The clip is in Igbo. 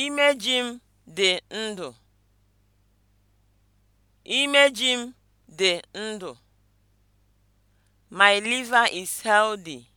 Imeji m dị ndụ. Imeji m dị ndụ. My liver is healthy.